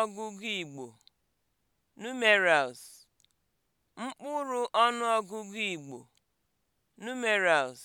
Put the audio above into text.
ọnụọgụgụ Igbo (numerals), mkpụrụ ọnụọgụgụ Igbo (numerals)